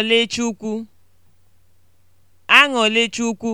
Aṅụlechukwu. Aṅụlechukwu